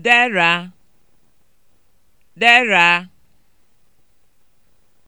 deraa deraa